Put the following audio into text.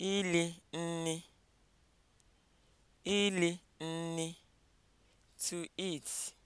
ili nni ili nni (to eat)